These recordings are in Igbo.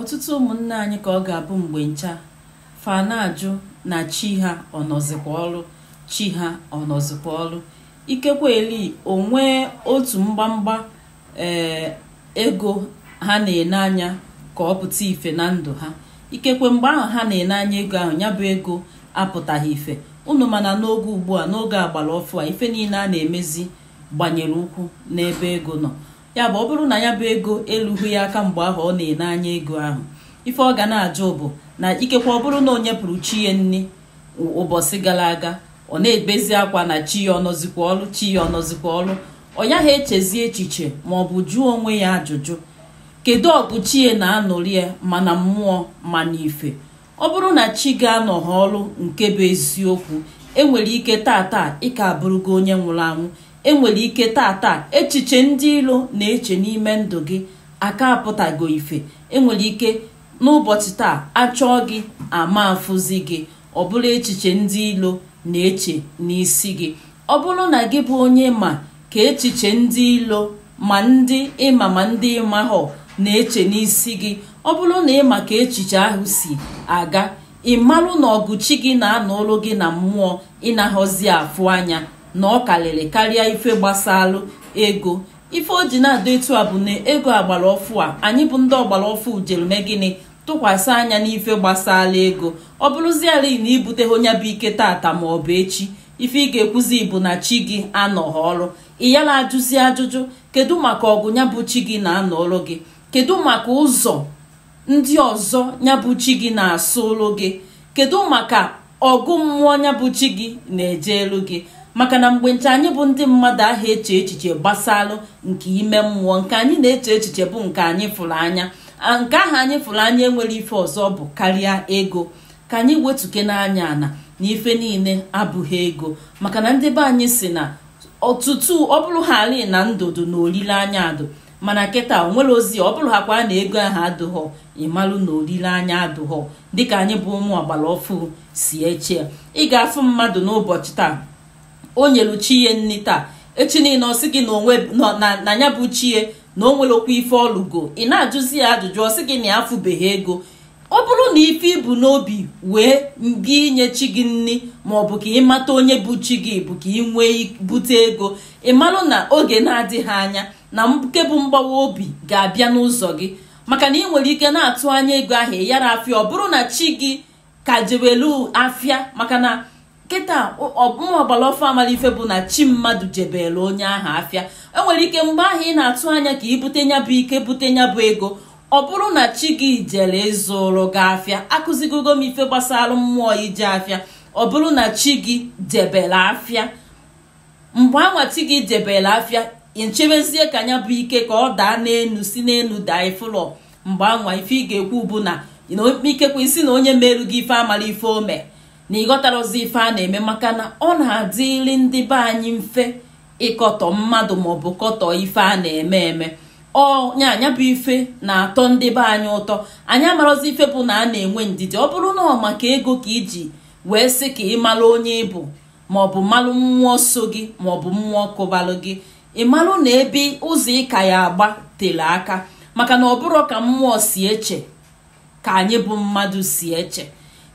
ọtụtụ ụmụnne anyị ka ọ ga-abụ mgbe ncha fanajụ na chi ha ọnọzikwa ọrụ chi ha ọnọzikwa ọrụ ikekwe eli onwe otu mgbamgba ee eh, ego ha na-ene anya ka ọ pụta ife na ndụ ha ikekwe mgbe ahụ ha na-ene anya ego ahụ ya bụ ego apụtaghị ife unu mana n'oge ugbu a n'oge agbara ọfụ a ife niile a na-emezi gbanyere ụkwụ n'ebe ego nọ ya bụ ọ bụrụ na ya bụ ego elughị ya aka mgbe ahụ ọ na-ene anya ego ahụ ife ọ ga na-ajụ bụ na ikekwe ọ bụrụ na onye pụrụ chi ya nne ụbọchị gara aga ọ na-ebezi akwa na chi ya ọnọzikwa ọrụ chi ya ọnọzikwa ọrụ ọ yaghị echezi echiche ma ọ bụ jụọ onwe ya ajụjụ kedu ọgụ chi ya na anụrị ya ma na mmụọ ma ife ọ bụrụ na chi ga-anọghị ọrụ nke bụ eziokwu enwere ike tata ị ka abụrụgo onye nwụrụ anwụ enwere ike taata echiche ndị ilo na-eche n'ime ndụ gị aka apụtago ife enwere ike n'ụbọchị taa achọọ gị ama afụzi gị ọ bụrụ echiche ndị ilo na-eche n'isi gị ọ bụrụ na gị bụ onye ma ka echiche ndị ilo ma ndị ịma ma ndị ịmahọ na-eche n'isi gị ọ bụrụ na ịma ka echiche ahụ si aga ị marụ na ọgụchi gị na-anọ ọrụ gị na mmụọ ịnaghọzi afụ anya na ọ karịrị karịa ife gbasalụ ego ife o ji na-adọ etu a bụ na ego agbara ọfụ a anyị bụ ndị ọgbara ọfụ ujerume gịnị tụkwasị anya n'ife gbasala ego ọ bụrụziala na ibute onye bụ ike tata ma ọ bụ echi ife ị ga-ekwuzi bụ na chi gị anọghị ọrụ ị yala ajụzi ajụjụ kedu maka ọgụ ya bụ chi gị na-anọ ọrụ gị kedu maka ụzọ ndị ọzọ ya bụ chi gị na-asụ ụlụ gị kedu maka ọgụ mmụọ ya bụ chi gị na-eje elu gị maka na mgbe nche anyị bụ ndị mmadụ ahụ eche echiche gbasalụ nke ime mmụọ nke anyị na-eche echiche bụ nke anyị fụrụ anya nke ahụ anyị fụrụ anya enwere ife ọzọ bụ karịa ego ka anyị wetuke n'anya ana na ife niile abụghị ego maka na ndị be anyị si na ọtụtụ ọ bụrụ ha ali na ndụdụ na olileanya adụ mana kịta onwere ozi ọ bụrụ hakwa na ego ahụ adụghọ ịmalụ na olileanya adụghọ dịka anyị bụ ụmụ ọgbara ọfụụ si eche ị ga-afụ mmadụ n'ụbọchị taa o nyelu nni taa echi niile ọsị gị na ya bụ chie na o nwerekwa ife ọlụgo ị na-ajụzi ya ajụjụ ọsị gị na ya afụbeghị ego ọ bụrụ na ife ibu n'obi wee gị inye chi gị nni maọbụ ka ịmata onye bụ chi gị bụ ka ị nwee bute ego ị marụ na oge na-adịghị anya na mbuke bụ mgbawa obi ga-abịa n'ụzọ gị maka na ị nwere ike na-atụ anya ego ahụ yara afịa ọ bụrụ na chi gị ka jewelu afịa maka na. kịta ọbụma ọgbara ọfọ amalife bụ na chi mmadụ jebere onye ahụ afịa enwere ike mgbe ahụ ị na-atụ anya ka ibute ya bụ ike bute ya bụ ego ọ bụrụ na chi gị jere ịzụrụ gị afịa akụzigogo m ife gbasara mmụọ ije afịa ọ bụrụ na chi gị jebere afịa mgbe anwa chi gị jebere afịa nchebezie ka nya bụ ike ka ọ daa n'elu si n'elu daa ifụlọ mgbe ife ị ga-ekwu bụ na ikpekwe isi na onye meru gị ife amara ife ome na ịghọtara ife a na-eme maka na ọ na-adịli ndị be anyị mfe ịkọtọ mmadụ maọbụ kọtọ ife a na-eme eme onye anya bụ ife na-atọ ndị be anyị ụtọ anyị marozi ife bụ na a na-enwe ndidi ọ bụrụ na ọ maka ego ka iji wee sị ka ị onye ịbụ maọbụ mmalụ mmụọ so gị maọbụ mmụọ kụbalụ gị ị malụ na ebe ụzọ ịka ya agba tere aka maka na ọ bụrụ ka mmụọ si eche ka anyị bụ mmadụ si eche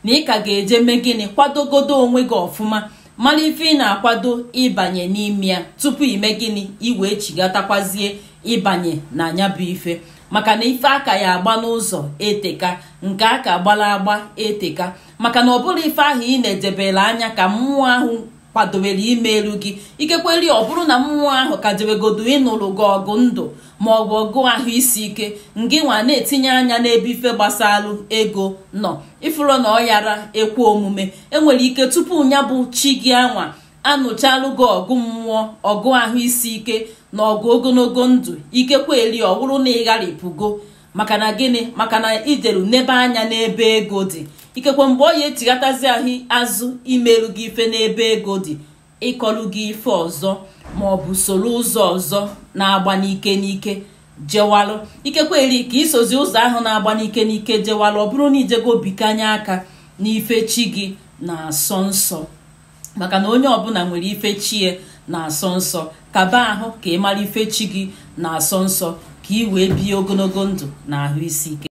na ị ka ga-eje mee gịnị kwadogodo onwe gị ọfụma mara ife ị na-akwado ịbanye n'ime ya tupu ime gịnị iwee chigatakwazie ịbanye na anya bụ ife maka na ife aka ya agba n'ụzọ eteka nke aka gbara agba eteka maka na ọ bụrụ ife ahụ ị na-edebere anya ka mmụọ ahụ kwadowere elu gị ikekweli ọ bụrụ na mmụọ ahụ ka debegodo ịnụrụ gị ọgụ ndụ ma ọ bụ ọgụ ahụ isi ike ngị nwa na-etinye anya n'ebe ife gbasalụ ego nọ ifuru na ọyara ekwe omume enwere ike tupu ya bụ chi gị anwa anụchalụ gị ọgụ mmụọ ọgụ ahụ isi ike na ọgụ ogologo ndụ ikekweli ọ bụrụ na ịgharịpụgo maka na gịnị maka na ideru n'ebe anya n'ebe ego dị ikekwe mgbe ọ ya etighatazi ahụ azụ imerụ gị ife n'ebe ego dị ịkọlụ gị ife ọzọ ma ọ bụ soro ụzọ ọzọ na-agba n'ike n'ike jewalụ ikekwe eri ka isozi ụzọ ahụ na-agba n'ike n'ike jewalụ ọ bụrụ na ijego bikanye aka n'ife chi gị na-asọ nsọ maka na onye ọbụla nwere ife chi ya na-asọ nsọ kaba ahụ ka ị mara ife chi gị na-asọ nsọ ka ị wee bie ogologo ndụ na ahụ isi ike